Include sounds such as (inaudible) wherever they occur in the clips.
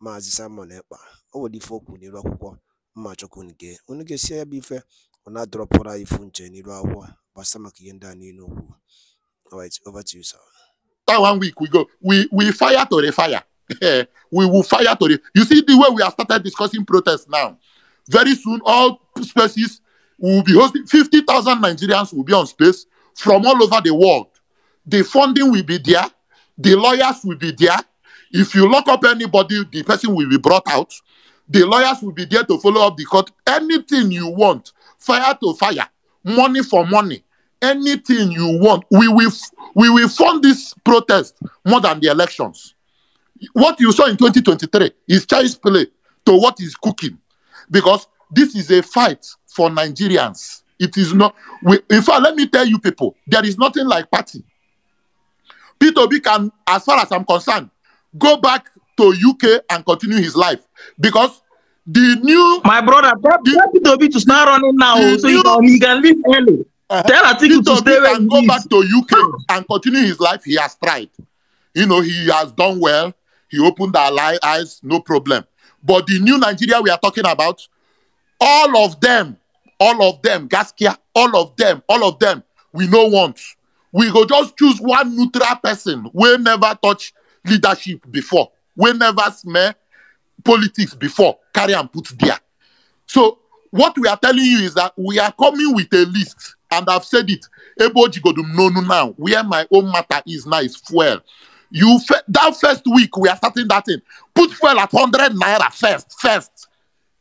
Maazị Simon Ekpa o ife o n'iru akwụkwọ mma chukwu nke unu ga-esi ya bụ ife ọ na-adọrọpụrụ anyị ifu nche n'iru akwụkwọ gbasa maka ihe ndị a niile okwu over to you sir that one week we go we we fire to refire (laughs) we will fire to re- you see the way we have started discussing protest now very soon all spaces will be hosting 50,000 Nigerians will be on space from all over the world the funding will be there the lawyers will be there If you lock up anybody, the person will be brought out. The lawyers will be there to follow up the court. Anything you want, fire to fire, money for money, anything you want. We will, we will fund this protest more than the elections. What you saw in 2023 is child's play to what is cooking because this is a fight for Nigerians. It is not. We, in fact, let me tell you people, there is nothing like party. Peter B can, as far as I'm concerned, go back to UK and continue his life because the new my brother the, Toby to start running now so new, he can leave early. Uh, Tell Atiku to stay where go back to UK and continue his life. He has tried. You know he has done well. He opened our eyes, no problem. But the new Nigeria we are talking about, all of them, all of them, Gaskia, all of them, all of them, we no want. We go just choose one neutral person. We never touch leadership before We never smell politics before carry and put there so what we are telling you is that we are coming with a list and i've said it to know now where my own matter is now is fuel you that first week we are starting that in put fuel at 100 naira first first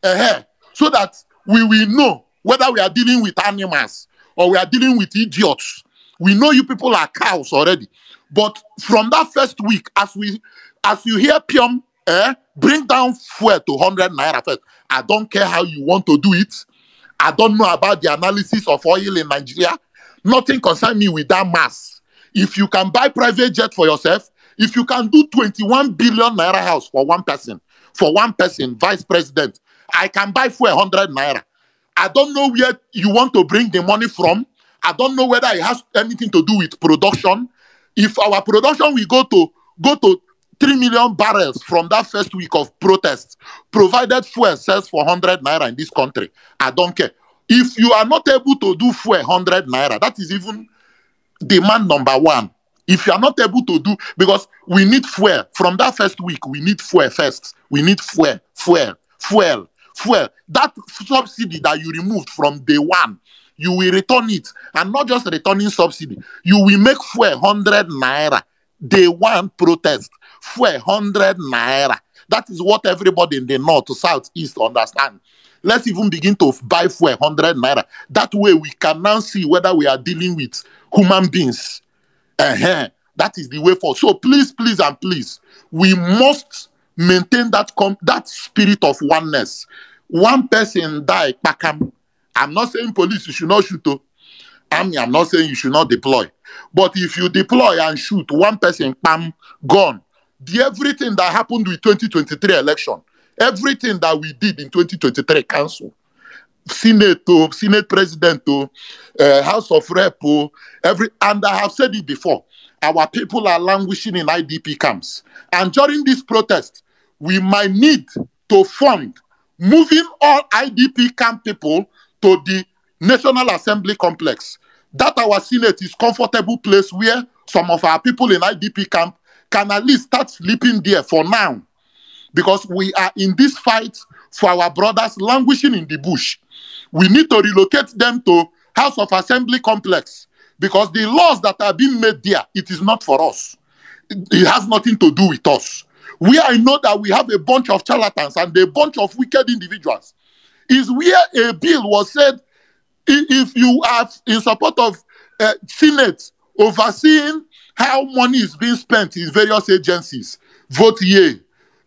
uh -huh, so that we will know whether we are dealing with animals or we are dealing with idiots we know you people are cows already But from that first week, as we as you hear Pium eh, bring down fuel to 100 naira first, I don't care how you want to do it. I don't know about the analysis of oil in Nigeria. Nothing concern me with that mass. If you can buy private jet for yourself, if you can do 21 billion naira house for one person, for one person, vice president, I can buy for 100 naira. I don't know where you want to bring the money from. I don't know whether it has anything to do with production. if our production will go to go to 3 million barrels from that first week of protests, provided fuel sells for 100 naira in this country. I don't care. If you are not able to do fuel 100 naira, that is even demand number one. If you are not able to do, because we need fuel from that first week, we need fuel first. We need fuel, fuel, fuel, fuel. That subsidy that you removed from day one you will return it. And not just returning subsidy, you will make 400 naira. Day one protest, 400 naira. That is what everybody in the north, south, east understand. Let's even begin to buy for hundred naira. That way we can now see whether we are dealing with human beings. Uh-huh. That is the way forward. So please, please, and please, we must maintain that com- that spirit of oneness. One person die, pakam. I'm not saying police, you should not shoot. Oh. Army, I'm not saying you should not deploy. But if you deploy and shoot one person, bam, gone. The everything that happened with 2023 election, everything that we did in 2023 council, Senate, oh, Senate President, uh, House of Rep, every, and I have said it before, our people are languishing in IDP camps. And during this protest, we might need to fund moving all IDP camp people to the National Assembly complex. That our Senate is comfortable place where some of our people in IDP camp can at least start sleeping there for now. Because we are in this fight for our brothers languishing in the bush. We need to relocate them to House of Assembly complex because the laws that are being made there, it is not for us. It has nothing to do with us. We I know that we have a bunch of charlatans and a bunch of wicked individuals is where a bill was said if you are in support of uh, Senate overseeing how money is being spent in various agencies, vote yea.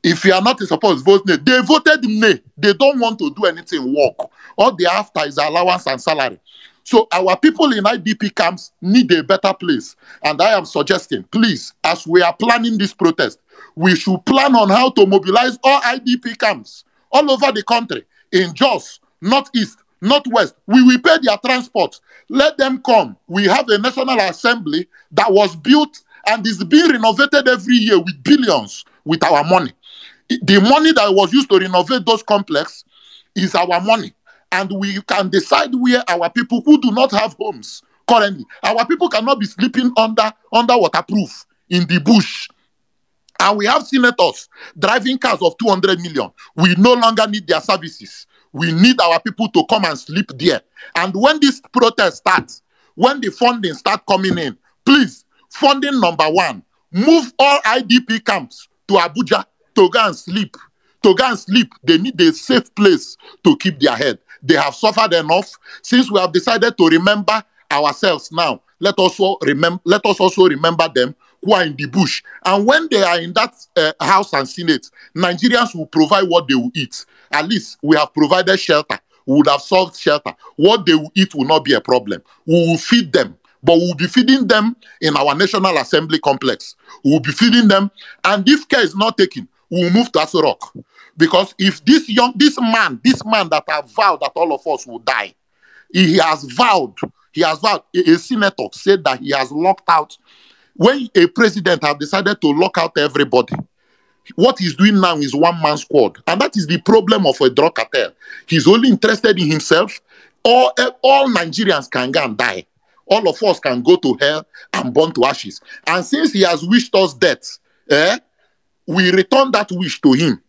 If you are not in support, vote nay. They voted nay. They don't want to do anything work. All they after is allowance and salary. So our people in IDP camps need a better place. And I am suggesting, please, as we are planning this protest, we should plan on how to mobilize all IDP camps all over the country in Jos, East, not West, We will pay their transport. Let them come. We have a National Assembly that was built and is being renovated every year with billions with our money. The money that was used to renovate those complexes is our money. And we can decide where our people who do not have homes currently, our people cannot be sleeping under, under waterproof in the bush and we have senators driving cars of 200 million. We no longer need their services. We need our people to come and sleep there. And when this protest starts, when the funding starts coming in, please, funding number one, move all IDP camps to Abuja to go and sleep. To go and sleep, they need a safe place to keep their head. They have suffered enough. Since we have decided to remember ourselves now, let us also remember let us also remember them who are in the bush. And when they are in that uh, House and Senate, Nigerians will provide what they will eat. At least we have provided shelter. We would have solved shelter. What they will eat will not be a problem. We will feed them, but we'll be feeding them in our National Assembly complex. We'll be feeding them. And if care is not taken, we'll move to Aso Rock. Because if this young, this man, this man that has vowed that all of us will die, he has vowed, he has vowed, a, a senator said that he has locked out when a president have decided to lock out everybody, what he's doing now is one man squad. And that is the problem of a drug cartel. He's only interested in himself. All, all Nigerians can go and die. All of us can go to hell and burn to ashes. And since he has wished us death, eh, we return that wish to him.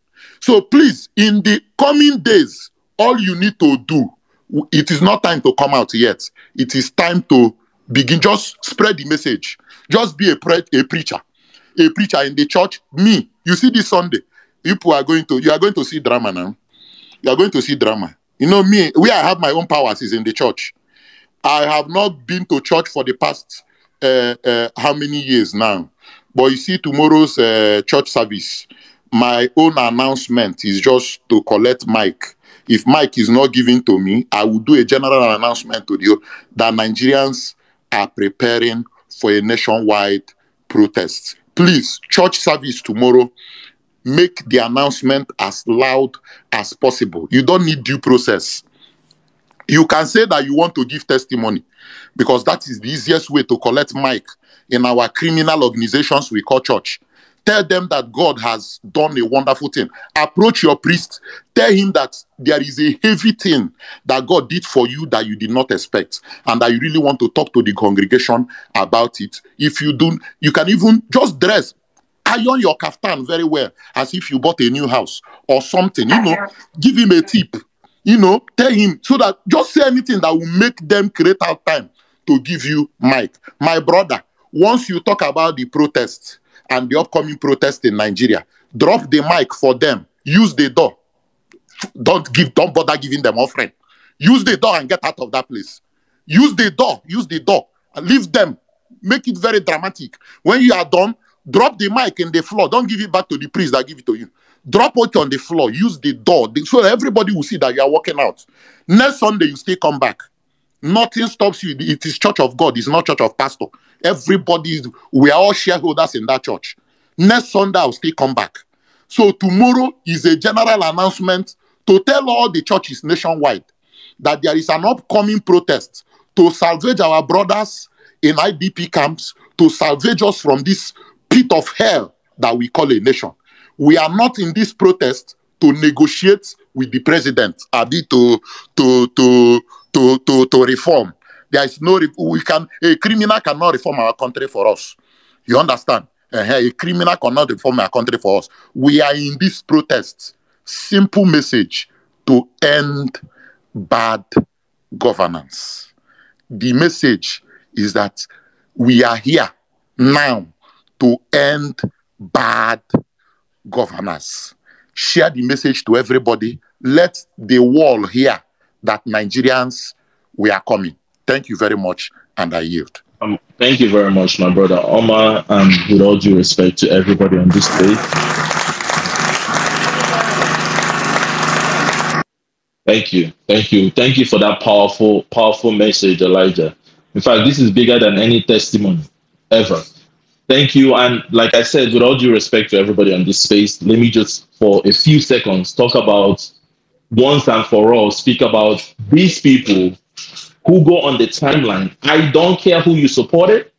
So please, in the coming days, all you need to do, it is not time to come out yet. It is time to begin. Just spread the message. Just be a, pre- a preacher, a preacher in the church. Me, you see this Sunday, people are going to you are going to see drama now. You are going to see drama. You know me, where I have my own powers is in the church. I have not been to church for the past uh, uh, how many years now. But you see, tomorrow's uh, church service, my own announcement is just to collect Mike. If Mike is not given to me, I will do a general announcement to you that Nigerians are preparing for a nationwide protest. Please, church service tomorrow, make the announcement as loud as possible. You don't need due process. You can say that you want to give testimony because that is the easiest way to collect mic in our criminal organizations we call church. Tell them that God has done a wonderful thing. Approach your priest. Tell him that there is a heavy thing that God did for you that you did not expect, and that you really want to talk to the congregation about it. If you don't, you can even just dress iron your kaftan very well as if you bought a new house or something you know give him a tip you know tell him so that just say anything that will make them create out time to give you mic my brother once you talk about the protests and the upcoming protest in Nigeria. Drop the mic for them. Use the door. Don't give, don't bother giving them offering. Use the door and get out of that place. Use the door. Use the door. Leave them. Make it very dramatic. When you are done, drop the mic in the floor. Don't give it back to the priest that give it to you. Drop it on the floor. Use the door. So everybody will see that you are walking out. Next Sunday, you still come back. Nothing stops you. It is church of God. It's not church of pastor. Everybody, we are all shareholders in that church. Next Sunday, I'll still come back. So tomorrow is a general announcement to tell all the churches nationwide that there is an upcoming protest to salvage our brothers in IDP camps, to salvage us from this pit of hell that we call a nation. We are not in this protest to negotiate with the president, to, to, to, to, to, to reform. There is no, we can, a criminal cannot reform our country for us. You understand? a criminal cannot reform our country for us. We are in this protest. Simple message to end bad governance. The message is that we are here now to end bad governance. Share the message to everybody. Let the world hear that Nigerians, we are coming. Thank you very much, and I yield. Um, thank you very much, my brother Omar, and with all due respect to everybody on this stage. Thank you, thank you, thank you for that powerful, powerful message, Elijah. In fact, this is bigger than any testimony ever. Thank you, and like I said, with all due respect to everybody on this space, let me just for a few seconds talk about once and for all, speak about these people who go on the timeline. I don't care who you supported.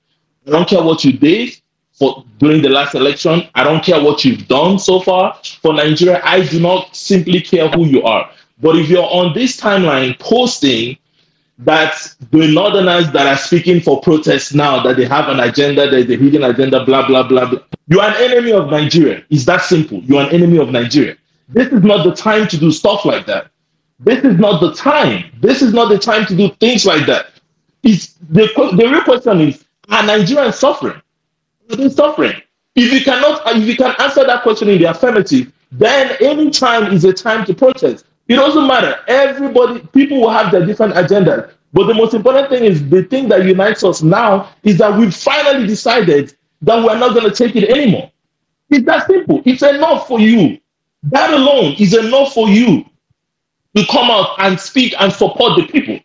I don't care what you did for during the last election. I don't care what you've done so far for Nigeria. I do not simply care who you are. But if you're on this timeline posting that the northerners that are speaking for protests now, that they have an agenda, that is a hidden agenda, blah, blah, blah, blah. You're an enemy of Nigeria. It's that simple. You're an enemy of Nigeria. This is not the time to do stuff like that. This is not the time. This is not the time to do things like that. It's, the, the real question is, are Nigerians suffering? Are they suffering? If you cannot, if you can answer that question in the affirmative, then any time is a time to protest. It doesn't matter. Everybody, people will have their different agendas. But the most important thing is the thing that unites us now is that we've finally decided that we're not going to take it anymore. It's that simple. It's enough for you. That alone is enough for you to come out and speak and support the people.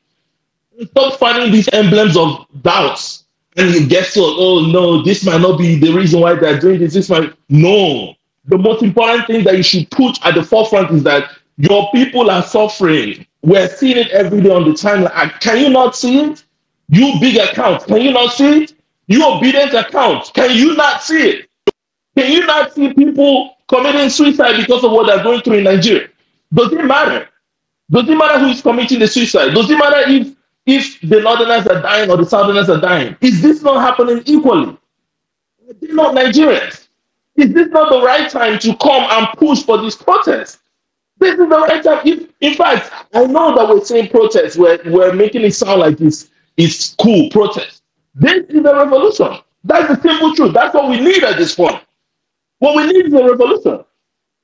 Stop finding these emblems of doubts and guess what? Oh no, this might not be the reason why they're doing this. This might no. The most important thing that you should put at the forefront is that your people are suffering. We're seeing it every day on the timeline. Can you not see it? You big account, can you not see it? You obedient account, can you not see it? Can you not see people committing suicide because of what they're going through in Nigeria? Does it matter? Doesn't matter who is committing the suicide. Doesn't matter if if the northerners are dying or the southerners are dying. Is this not happening equally? Are they not Nigerians? Is this not the right time to come and push for this protest? This is the right time. If, in fact, I know that we're saying protest, we're, we're making it sound like it's, it's cool protest. This is a revolution. That's the simple truth. That's what we need at this point. What we need is a revolution.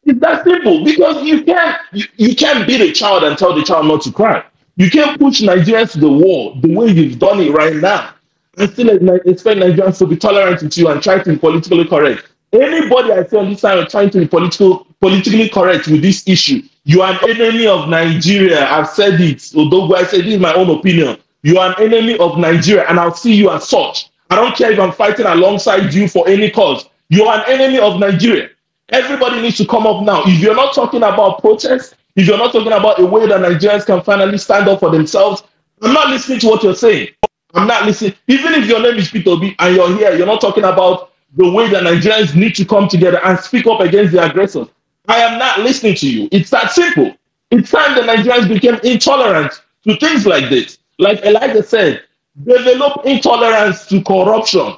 It's that simple because you can't you, you can't beat a child and tell the child not to cry. You can't push Nigeria to the wall the way you've done it right now and still expect Nigerians to be tolerant with you and try to be politically correct. Anybody I see on this side trying to be political, politically correct with this issue, you are an enemy of Nigeria. I've said it. Although I said this is my own opinion. You are an enemy of Nigeria, and I'll see you as such. I don't care if I'm fighting alongside you for any cause. You are an enemy of Nigeria. Everybody needs to come up now. If you're not talking about protest, if you're not talking about a way that Nigerians can finally stand up for themselves, I'm not listening to what you're saying. I'm not listening. Even if your name is Peter B and you're here, you're not talking about the way that Nigerians need to come together and speak up against the aggressors. I am not listening to you. It's that simple. It's time the Nigerians became intolerant to things like this. Like Elijah said, develop intolerance to corruption.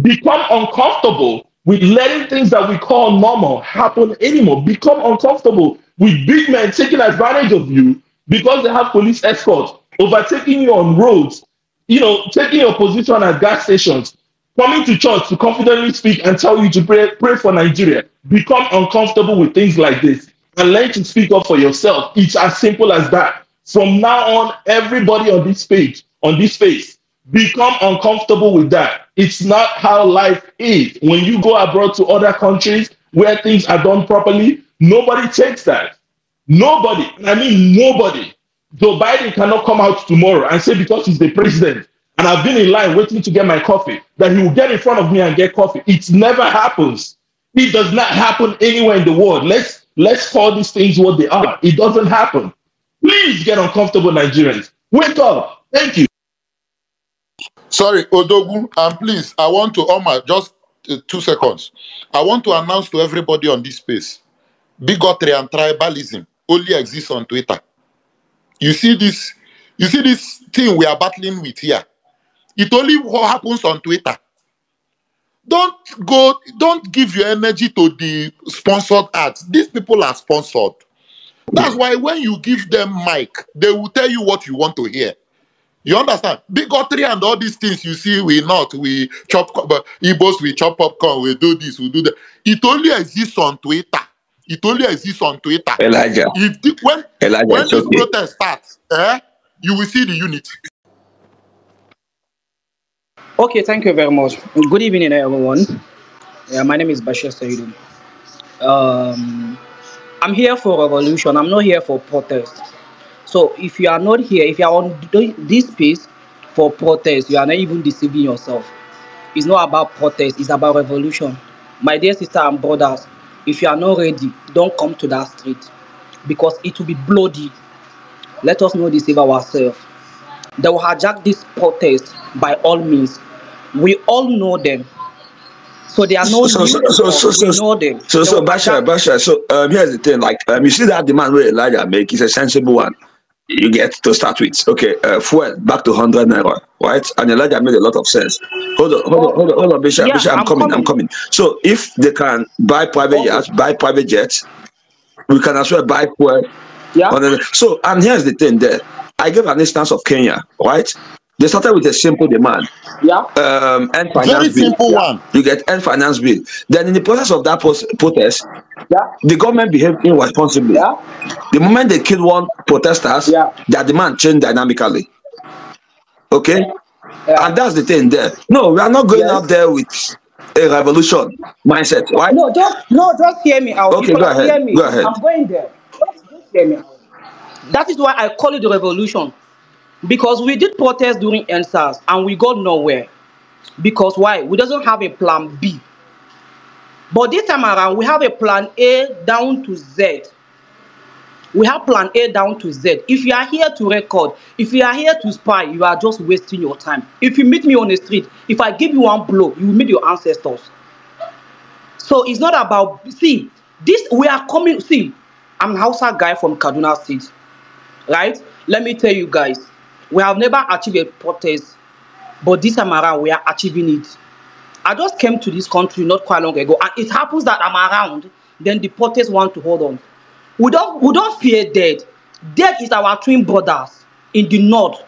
Become uncomfortable with letting things that we call normal happen anymore, become uncomfortable with big men taking advantage of you because they have police escorts, overtaking you on roads, you know, taking your position at gas stations, coming to church to confidently speak and tell you to pray, pray for Nigeria. Become uncomfortable with things like this and learn to speak up for yourself. It's as simple as that. From now on, everybody on this page, on this face become uncomfortable with that. It's not how life is. When you go abroad to other countries where things are done properly, nobody takes that. Nobody, I mean nobody. Joe Biden cannot come out tomorrow and say because he's the president and I've been in line waiting to get my coffee that he will get in front of me and get coffee. It never happens. It does not happen anywhere in the world. Let's let's call these things what they are. It doesn't happen. Please get uncomfortable, Nigerians. Wake up. Thank you. Sorry, Odogu, and please, I want to, Omar, just uh, two seconds. I want to announce to everybody on this space, bigotry and tribalism only exists on Twitter. You see this, you see this thing we are battling with here. It only what happens on Twitter. Don't go, don't give your energy to the sponsored ads. These people are sponsored. That's why when you give them mic, they will tell you what you want to hear. You understand? Bigotry and all these things you see, we not, we chop, but Igbos, we chop popcorn, we do this, we do that. It only exists on Twitter. It only exists on Twitter. Elijah. If the, when Elijah, when this okay. protest starts, eh, you will see the unity. Okay, thank you very much. Good evening, everyone. Yeah, my name is Bashir Sayyidu. Um, I'm here for revolution. I'm not here for protest. So if you are not here, if you are on this Peace for protest. You are not even deceiving yourself. It's not about protest, it's about revolution. My dear sister and brothers, if you are not ready, don't come to that street because it will be bloody. Let us not deceive ourselves. They will hijack this protest by all means. We all know them. So they are no so, so, so, so, so, so, them. So, so, Basha, Basha, so um, here's the thing. Like, um, you see that demand where Elijah make is a sensible one. you get to start with. Okay, uh, fuel back to 100 naira, right? And Elijah made a lot of sense. Hold on, hold on, hold on, hold on Bishop, yeah, Bishop, I'm, I'm coming, coming, I'm coming. So if they can buy private jets, oh. buy private jets, we can as well buy fuel. Yeah. So, and here's the thing there. I gave an instance of Kenya, right? They started with a simple demand. Yeah. Um, finance Very bill. simple yeah. one. You get end finance bill. Then in the process of that protest, yeah. the government behaved irresponsibly. Yeah. The moment they killed one protesters, yeah. their demand changed dynamically. Okay? Yeah. And that's the thing there. No, we are not going yes. out there with a revolution mindset, right? No, just no, just hear me out. Okay, go ahead. Hear me. Go ahead. I'm going there. Just, just hear me out. That is why I call it the revolution. Because we did protest during NSAS and we got nowhere. Because why? We doesn't have a plan B. But this time around, we have a plan A down to Z. We have plan A down to Z. If you are here to record, if you are here to spy, you are just wasting your time. If you meet me on the street, if I give you one blow, you will meet your ancestors. So it's not about, see, this, we are coming, see, I'm a Hausa guy from Kaduna State, right? Let me tell you guys, We have never achieved a protest, but this time around we are achieving it. I just came to this country not quite long ago, and it happens that I'm around, then the protest want to hold on. We don't, we don't fear death. Death is our twin brothers in the north.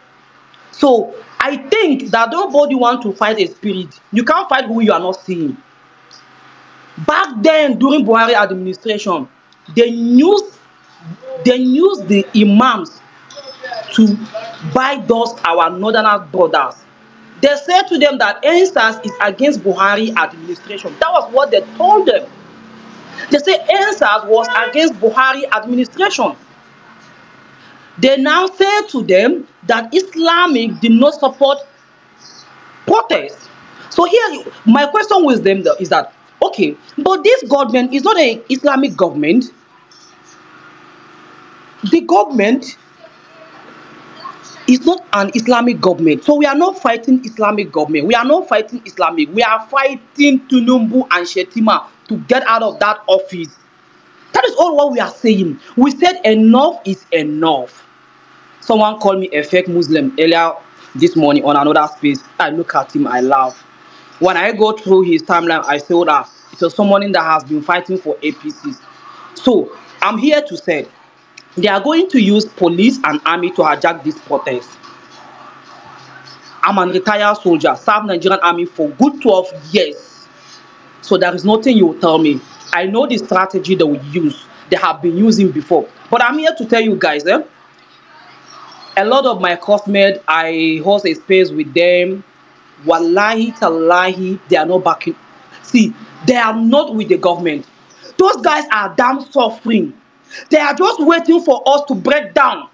So I think that nobody wants to fight a spirit. You can't fight who you are not seeing. Back then, during Buhari administration, they used, they used the imams to buy those our northern brothers. They said to them that ENSAS is against Buhari administration. That was what they told them. They say ENSAS was against Buhari administration. They now say to them that Islamic did not support protests. So here, my question with them is that, okay, but this government is not an Islamic government. The government it's not an Islamic government. So we are not fighting Islamic government. We are not fighting Islamic. We are fighting Tunumbu and Shetima to get out of that office. That is all what we are saying. We said enough is enough. Someone called me a fake Muslim earlier this morning on another space. I look at him, I laugh. When I go through his timeline, I saw that it was someone that has been fighting for APCs. So I'm here to say they are going to use police and army to hijack this protest. I'm a retired soldier, served Nigerian army for good 12 years. So there is nothing you will tell me. I know the strategy they will use. They have been using before. But I'm here to tell you guys, eh? a lot of my classmates, I host a space with them. Wallahi, talahi, they are not backing. See, they are not with the government. Those guys are damn suffering. They are just waiting for us to break down.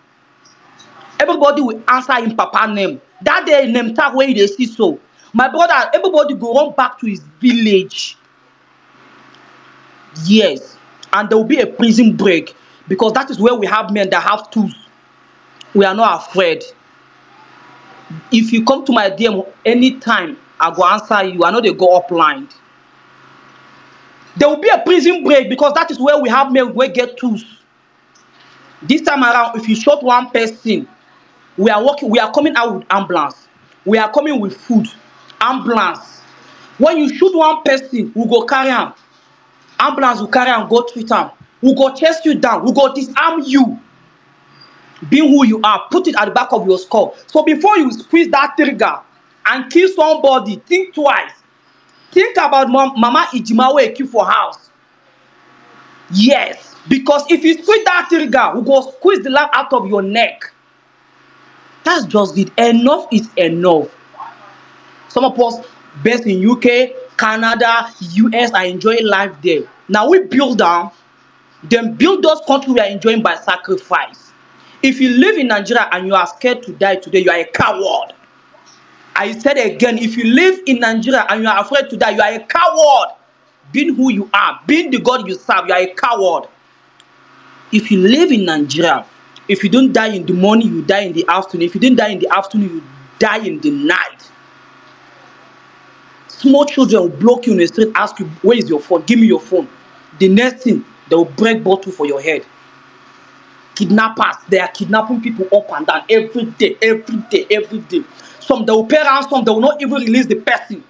Everybody will answer in Papa name. That day in Nemtag where they see so. My brother, everybody go run back to his village. Yes. And there will be a prison break because that is where we have men that have tools. We are not afraid. If you come to my DM anytime, I go answer you. I know they go up upline. There will be a prison break because that is where we have men wey get tools. This time around, if you shot one person, we are working, we are coming out with ambulance. We are coming with food, ambulance. When you shoot one person, we go carry am. Ambulance will carry am go treat am. We go chase you down. We go disarm you. Be who you are. Put it at the back of your skull. So before you squeeze that trigger and kill somebody, think twice. Think about mom, Mama Ijimawe Eki for house. Yes, because if you squeeze that trigger, we go squeeze the life out of your neck. That's just it. Enough is enough. Some of us based in UK, Canada, US are enjoying life there. Now we build down, then build those countries we are enjoying by sacrifice. If you live in Nigeria and you are scared to die today, you are a coward. I said again, if you live in Nigeria and you are afraid to die, you are a coward. Being who you are, being the God you serve, you are a coward. If you live in Nigeria, if you don't die in the morning, you die in the afternoon. If you don't die in the afternoon, you die in the night. Small children will block you in the street, ask you, where is your phone? Give me your phone. The next thing, they will break bottle for your head. Kidnappers, they are kidnapping people up and down every day, every day, every day. Some they will pay ransom, they will not even release the person.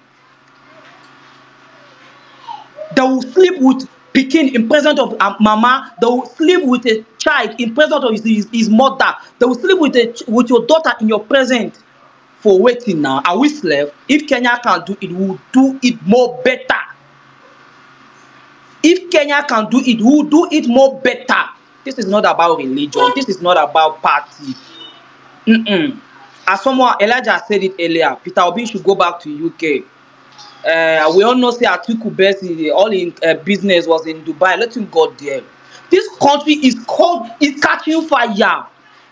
They will sleep with Pekin in presence of uh, mama, they will sleep with a child in presence of his, his, his mother, they will sleep with, a, with your daughter in your presence. For waiting now, are we slave? If Kenya can do it, we'll do it more better. If Kenya can do it, we'll do it more better. This is not about religion. This is not about party. Mm-mm. As someone, Elijah said it earlier, Peter Obi should go back to UK. Uh, we all know say Atiku Best, all in uh, business was in Dubai. Let him go there. This country is cold, it's catching fire.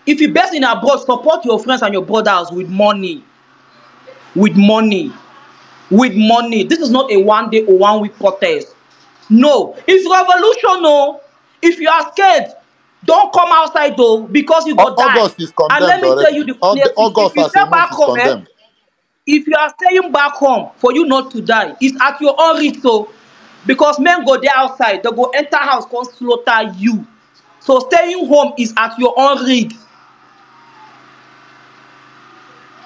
If you best in abroad, support your friends and your brothers with money. With money. With money. This is not a one day or one week protest. No. It's revolution, no. Oh. If you are scared, Don't come outside though, because you go August die. August is condemned. And let me tell you the place. August if you stay back home, eh, if you are staying back home for you not to die, it's at your own risk. So, because men go there outside, they go enter house, come slaughter you. So staying home is at your own risk.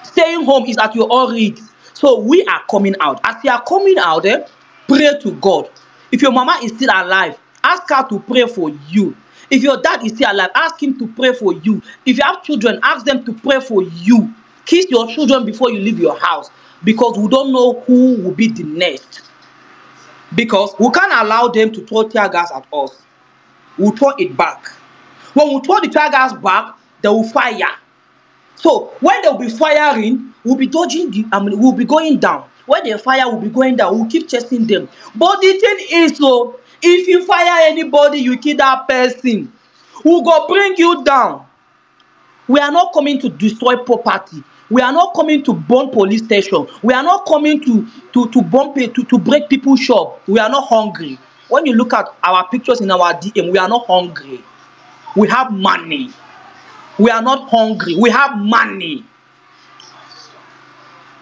Staying home is at your own risk. So we are coming out. As you are coming out, eh, pray to God. If your mama is still alive, ask her to pray for you. If your dad is still alive, ask him to pray for you. If you have children, ask them to pray for you. Kiss your children before you leave your house because we don't know who will be the next. Because we can't allow them to throw tear gas at us. We'll throw it back. When we throw the tear gas back, they will fire. So when will be firing, we'll be dodging the, I mean, we'll be going down. When they fire, we'll be going down. We'll keep chasing them. But the thing is, so oh, if you fire anybody you kill that person we go bring you down we are not coming to destroy property we are not coming to burn police station we are not coming to to to burn pay to to break people shop we are not hungry when you look at our pictures in our dm we are not hungry we have money we are not hungry we have money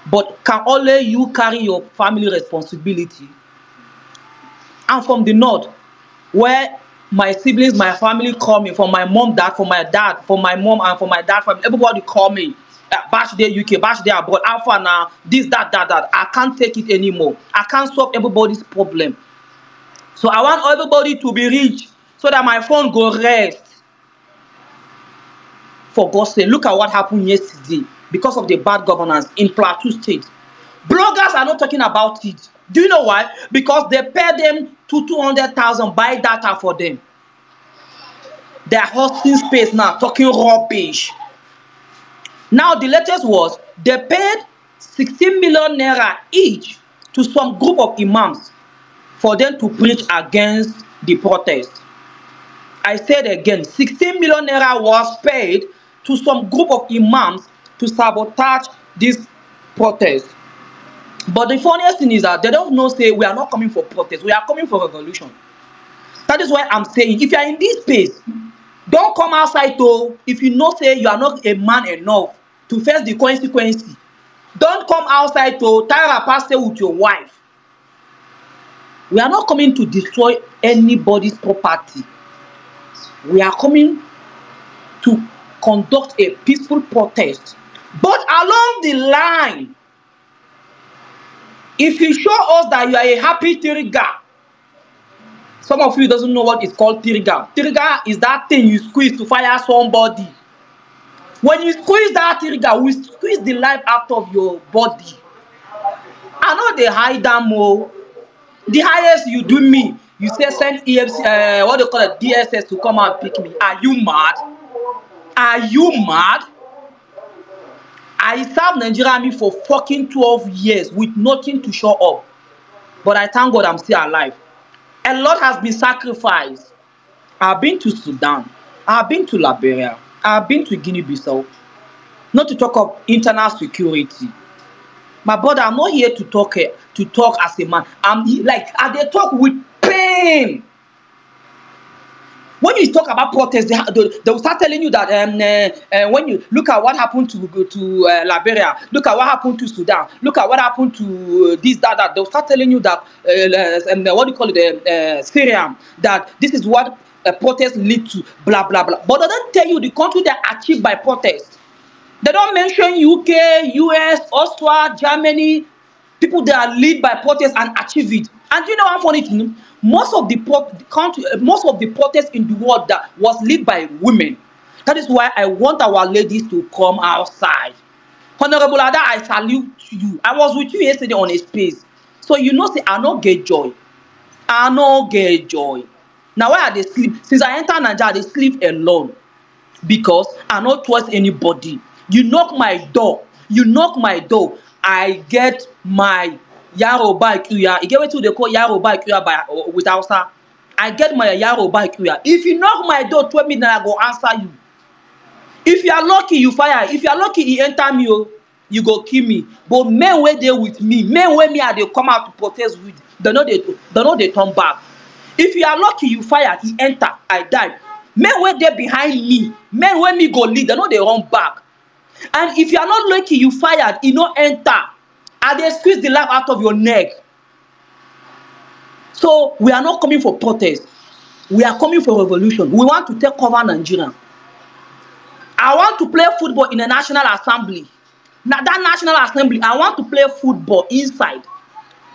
but can only you carry your family responsibility I'm from the north, where my siblings, my family call me, from my mom, dad, from my dad, from my mom, and from my dad, from everybody call me. Uh, bash there UK, bash there abroad, alpha now, this, that, that, that. I can't take it anymore. I can't solve everybody's problem. So I want everybody to be rich so that my phone go rest. For God's sake, look at what happened yesterday because of the bad governance in Plateau State. Bloggers are not talking about it. Do you know why? Because they pay them to 200,000 buy data for them. They're hosting space now, talking rubbish. Now, the latest was they paid 16 million naira each to some group of imams for them to preach against the protest. I said again, 16 million naira was paid to some group of imams to sabotage this protest. But the funniest thing is that they don't know say we are not coming for protest, we are coming for revolution. That is why I'm saying if you are in this space, don't come outside to if you know say you are not a man enough to face the consequence. Don't come outside to tie a pastor with your wife. We are not coming to destroy anybody's property. We are coming to conduct a peaceful protest. But along the line, If you show us that you are a happy tiriga, some of you doesn't know what is called tiriga. Tiriga is that thing you squeeze to fire somebody. When you squeeze that tiriga, we squeeze the life out of your body. I know they hide them all. The highest you do me, you say send EFC, uh, eh, what do you call it, DSS to come and pick me. Are you mad? Are you mad? I served Nigeria army for fucking 12 years with nothing to show up. But I thank God I'm still alive. A lot has been sacrificed. I've been to Sudan. I've been to Liberia. I've been to Guinea-Bissau. Not to talk of internal security. My brother, I'm not here to talk eh, to talk as a man. I'm like I they talk with pain when you talk about protest, they, they will start telling you that um, uh, uh, when you look at what happened to to uh, Liberia, look at what happened to Sudan, look at what happened to uh, this, that, that. They will start telling you that, uh, uh um, what do you call it, uh, uh Syria, that this is what a protest lead to, blah, blah, blah. But they don't tell you the country that achieved by protest. They don't mention UK, US, Austria, Germany, people that lead by protest and achieve it. And you know how funny it is? Most of the pro- country, most of the protests in the world that was led by women. That is why I want our ladies to come outside. Honorable Ada, I salute you. I was with you yesterday on a space. So you know, say, I no get joy. I no get joy. Now, why I dey sleep? Since I enter Naija, they sleep alone. Because I no trust anybody. You knock my door. You knock my door. I get my yaro ba kuya. You get what they call yaro ba kuya by uh, with Hausa. I get my yaro ba kuya. If you knock my door, tell minutes that I go answer you. If you are lucky, you fire. If you are lucky, he enter me. Oh. You go kill me. But men where they with me, men where me are they come out to protest with. They know they they know they turn back. If you are lucky, you fire. He enter. I die. Men where they behind me, men where me go lead. They know they run back. And if you are not lucky, you fired. He no enter and they squeeze the life out of your neck so we are not coming for protest we are coming for revolution we want to take over nigeria i want to play football in the national assembly na that national assembly i want to play football inside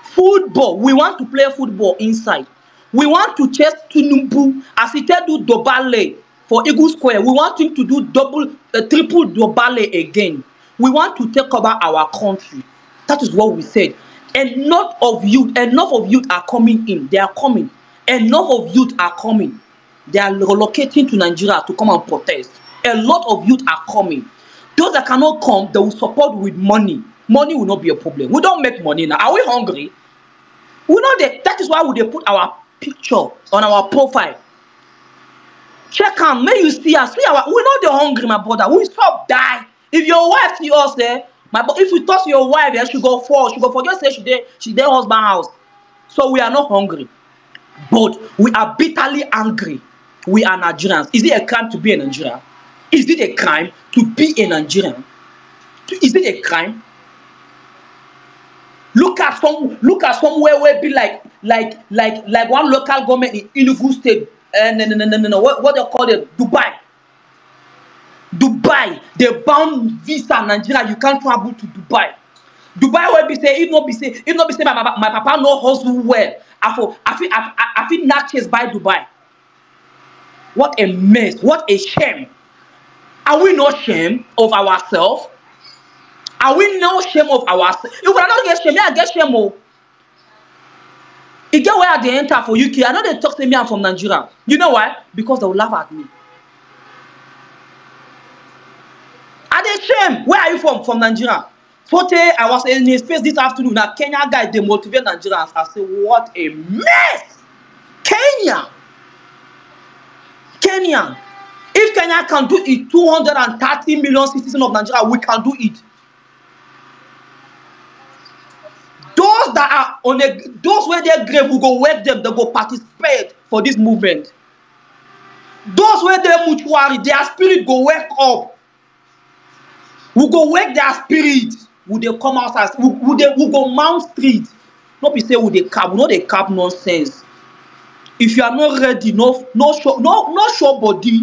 football we want to play football inside we want to chase tinubu as he take do dobale for eagle square we want him to do double uh, triple dobale again we want to take over our country That is what we said. Enough of youth, enough of youth are coming in. They are coming. Enough of youth are coming. They are relocating to Nigeria to come and protest. A lot of youth are coming. Those that cannot come, they will support with money. Money will not be a problem. We don't make money now. Are we hungry? We know that that is why we dey put our picture on our profile. Check am make you see us. We, our, we no dey hungry, my brother. We stop die. If your wife see us there, eh, my but if you talk to your wife yeah, she go fall she go forget say she dey she dey husband house so we are not hungry but we are bitterly angry we are nigerians is it a crime to be a nigerian is it a crime to be a nigerian is it a crime look at some look at somewhere where be like like like like one local government in enugu state uh, no, no, no, no, no. What, what they call it dubai dubai they bound visa nigeria you can't travel to dubai dubai will be say if not be say if not be say my my my papa no hustle well i for i fit i, I fit knack chase by dubai what a mess what a shame are we no shame of ourselves are we no shame of ourselves if una no get shame me i get shame o oh. e get where i dey enter for uk i no dey talk say me i'm from nigeria you know why because they will laugh at me i where are you from from nigeria forte i was in his face this afternoon A kenya guy dey motivate nigerians i say what a mess kenya kenya if kenya can do it two hundred and thirty million citizens of nigeria we can do it those that are on a those where dey grave we go wake them they go participate for this movement those where dey mortuary their spirit go wake up we go wake their spirit we dey come out as we, we dey we go mount street no be say we dey cap we no dey cap nonsense if you are not ready no no show no no show body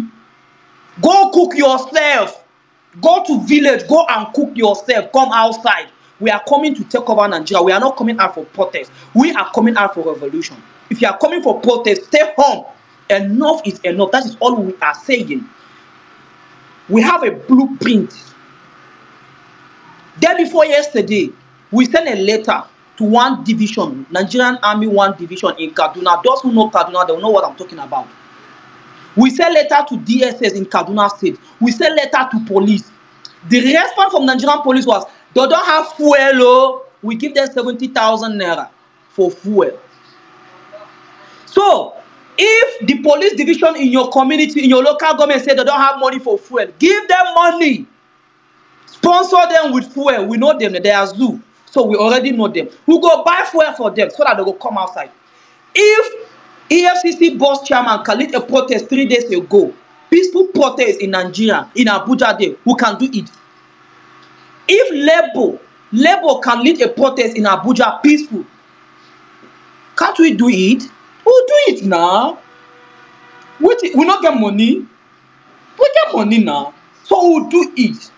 go cook yourself go to village go and cook yourself come outside we are coming to take over nigeria we are not coming out for protest we are coming out for revolution if you are coming for protest stay home enough is enough that is all we are saying we have a blueprint Day before yesterday, we sent a letter to one division, Nigerian Army one division in Kaduna. Those who know Kaduna, they know what I'm talking about. We sent letter to DSS in Kaduna State. We sent letter to police. The response from Nigerian police was, they don't have fuel, oh. we give them 70,000 naira for fuel. So, if the police division in your community, in your local government say they don't have money for fuel, give them money sponsor them with fuel we know them they are zoo so we already know them we go buy fuel for them so that they go come outside if efcc boss chairman khalid a protest three days ago peaceful protest in nigeria in abuja day who can do it if labour labour can lead a protest in abuja peaceful can't we do it we'll do it now we, we no get money we get money now so we'll do it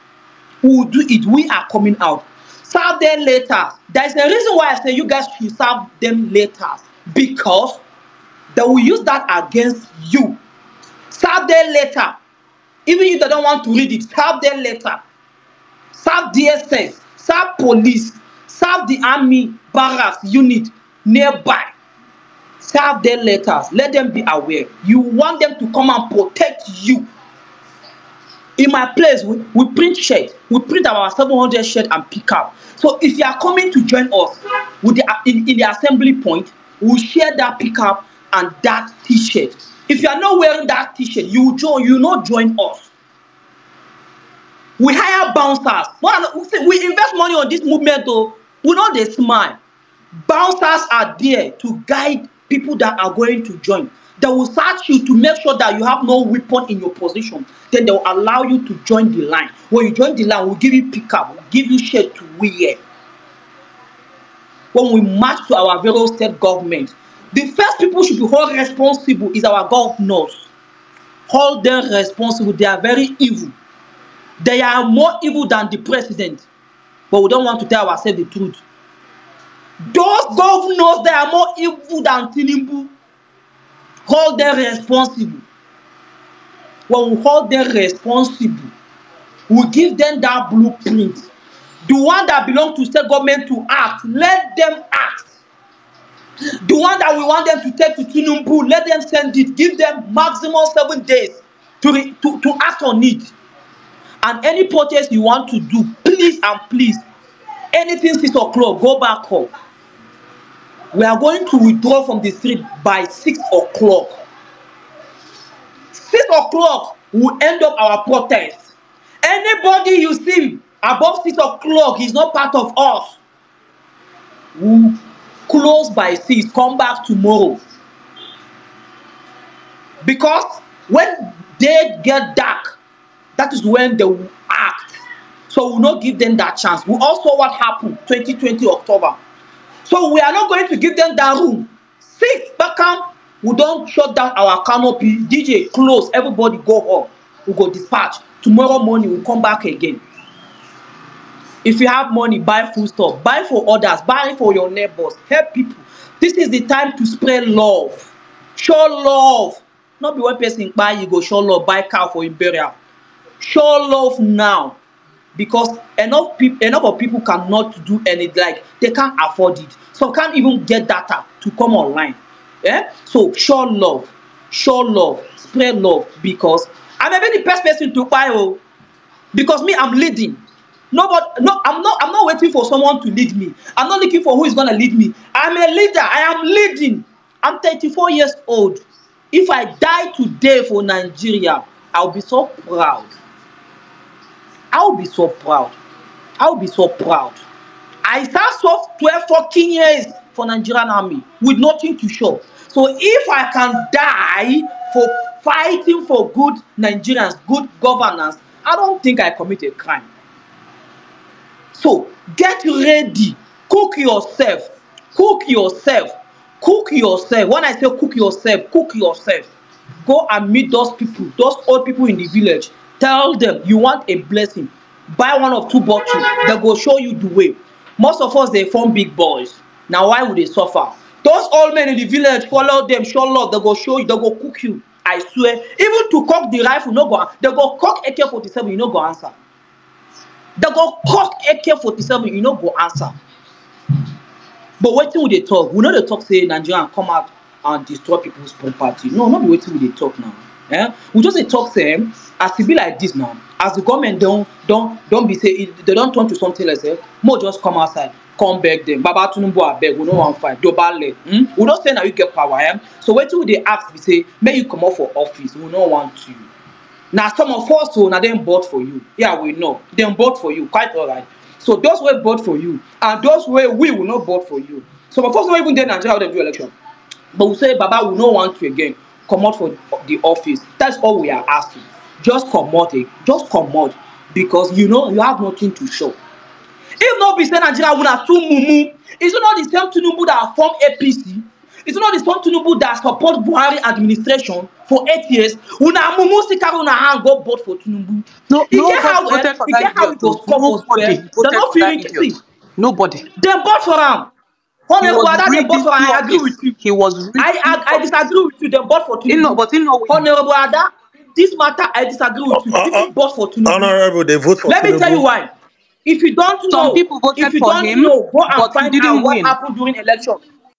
Who do it. We are coming out. Serve them later. There is a reason why I say you guys should serve them later because they will use that against you. Serve them later. Even if they don't want to read it, serve them later. Serve DSS, serve police, serve the army barracks unit nearby. Serve them letters. Let them be aware. You want them to come and protect you in my place we, we print shirt we print about seven hundred shirt and pick up so if you are coming to join us with the in, in the assembly point we share that pickup and that t-shirt if you are not wearing that t-shirt you join you not join us we hire bouncers we invest money on this movement o we know they smile bouncers are there to guide people that are going to join They will search you to make sure that you have no weapon in your position. Then they will allow you to join the line. When you join the line, we'll give you pickup, we'll give you shirt to wear. When we march to our various state government, the first people should be held responsible is our governors. Hold them responsible. They are very evil. They are more evil than the president. But we don't want to tell ourselves the truth. Those governors, they are more evil than Tinubu hold them responsible. When we hold them responsible, we give them that blueprint. The one that belong to state government to act, let them act. The one that we want them to take to Tinubu, let them send it. Give them maximum seven days to, to, to act on it. And any protest you want to do, please and please, anything 6 o'clock, go back home we are going to withdraw from the street by six o'clock six o'clock we end up our protest anybody you see above six o'clock is not part of us we close by six come back tomorrow because when they get dark that is when they act so we no give them that chance we all saw what happen 2020 october So we are not going to give them that room. Six Beckham, we don't shut down our canopy. DJ, close. Everybody go home. We go dispatch. Tomorrow morning, we come back again. If you have money, buy food stuff. Buy for others. Buy for your neighbors. Help people. This is the time to spread love. Show love. Not be one person buy, you go show love, buy cow for your burial. Show love now because enough people enough of people cannot do any like they can't afford it some can't even get data to come online Yeah. so show love show love spread love because I'm may be the best person to buy o oh. because me i'm leading nobody no i'm not i'm not waiting for someone to lead me i'm not looking for who is gonna lead me i'm a leader i am leading i'm 34 years old if i die today for nigeria i'll be so proud I'll be so proud. I'll be so proud. I served 12 14 years for Nigerian army with nothing to show. So if I can die for fighting for good Nigerians, good governance, I don't think I commit a crime. So get ready, cook yourself, cook yourself, cook yourself. When I say cook yourself, cook yourself. Go and meet those people, those old people in the village. tell them you want a blessing buy one of two bottles they go show you the way most of us dey form big boys na why we dey suffer those old men in the village follow them show love they go show you they go cook you i swear even to cock the rifle no go they go cock ak-47 you no go answer they go cock ak-47 you no go answer but wetin we dey talk we no dey talk say nigerian come out and destroy people's property no no be wetin we dey talk now eh? we just dey talk them as e be like this now as the government don't don't don't be say they don't turn to something like say eh? More just come outside come beg them. baba tinubu beg. we don't want fight dobale hmm? we don say na you get power eh? so wetin we dey ask we say may you come comot for office we don't want you Now some of us who oh, na then bought for you yeah we know They bought for you quite alright so those wey bought for you and those where we will not bought for you So of course not even dey nigeria how dem do election but we say baba we no want you again comot for the office that's all we are asking just comot eh just comot because you know you have nothing to show if no be say nigeria una too mumu is it not the same tinubu that form apc is it not the same tinubu that support buhari administration for eight years una mumu still carry una hand go vote for tinubu no, e no, get how e get how e go score for square dem no fit reach see nobody dem vote for am Honestly, they bought for I agree with you. He was I, I I disagree with you. They bought for Tinubu. No, but in know. way. Honorable Ada, this matter I disagree with you. They uh, uh, bought for Tinubu. Honorable, they vote for Let me tell you why. If you don't Some know, Some people voted if you for don't him, know, go and find out what happened during election.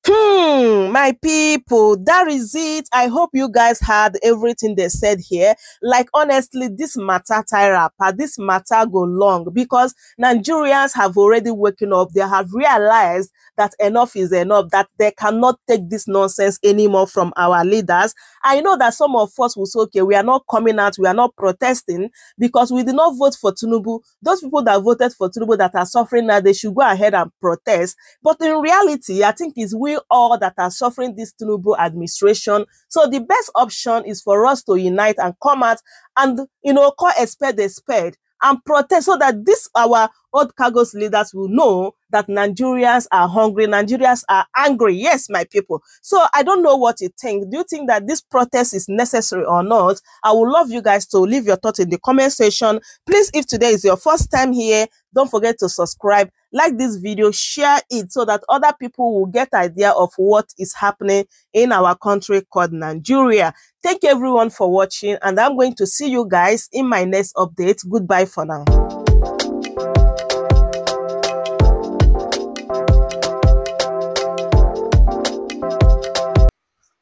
Hmm, my people, that is it. I hope you guys heard everything they said here. Like, honestly, this matter tie up, uh, this matter go long because Nigerians have already woken up. They have realized that enough is enough, that they cannot take this nonsense anymore from our leaders I know that some of us will say, okay, we are not coming out, we are not protesting because we did not vote for Tunubu. Those people that voted for Tunubu that are suffering now, they should go ahead and protest. But in reality, I think it's we all that are suffering this Tunubu administration. So the best option is for us to unite and come out and, you know, call a spade a spade and protest so that this our old cargos leaders will know that Nigerians are hungry, Nigerians are angry. Yes, my people. So I don't know what you think. Do you think that this protest is necessary or not? I would love you guys to leave your thoughts in the comment section. Please, if today is your first time here, don't forget to subscribe like this video, share it so that other people will get idea of what is happening in our country called Nigeria. Thank everyone for watching and I'm going to see you guys in my next update. Goodbye for now.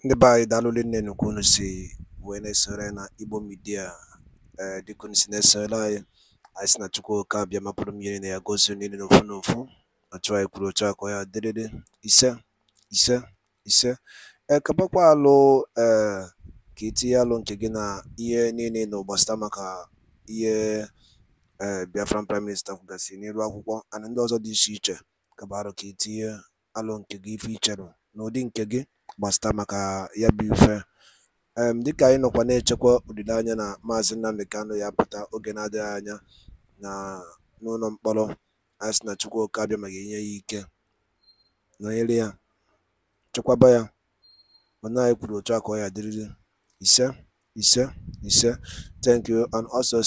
ndị be anyị daalụ wene serena ibo media. wee eh, na anyị sị na Chukwuka bịa mapụrụ m ihe niile ya gosi niile n'ofu n'ofu otu anyị kwuru otu a ka ya dịrịrị ise ise ise ekebakwa eh, alụ ee ka itinye alụ nke gị na ihe niile na ụgbasịta maka ihe ee Biafran prime minista kwugasị n'elu akwụkwọ ana ndị ọzọ dị iche iche kaba arụ ka itinye alụ nke gị ife icherụ n'ụdị nke gị gbasịta maka ya bụ ife dịka anyị nọkwa na-echekwa olileanya na maazị Nnamdi Kanu ya apụta oge na-adịghị anya na n'ụlọ mkpọrọ a sị na Chukwuka abịa ma ga-enye ya ike nọnyere ya chekwaba ya mana anyị kwuru otu a ka ọ ya dịrịrị ise ise ise thank you and also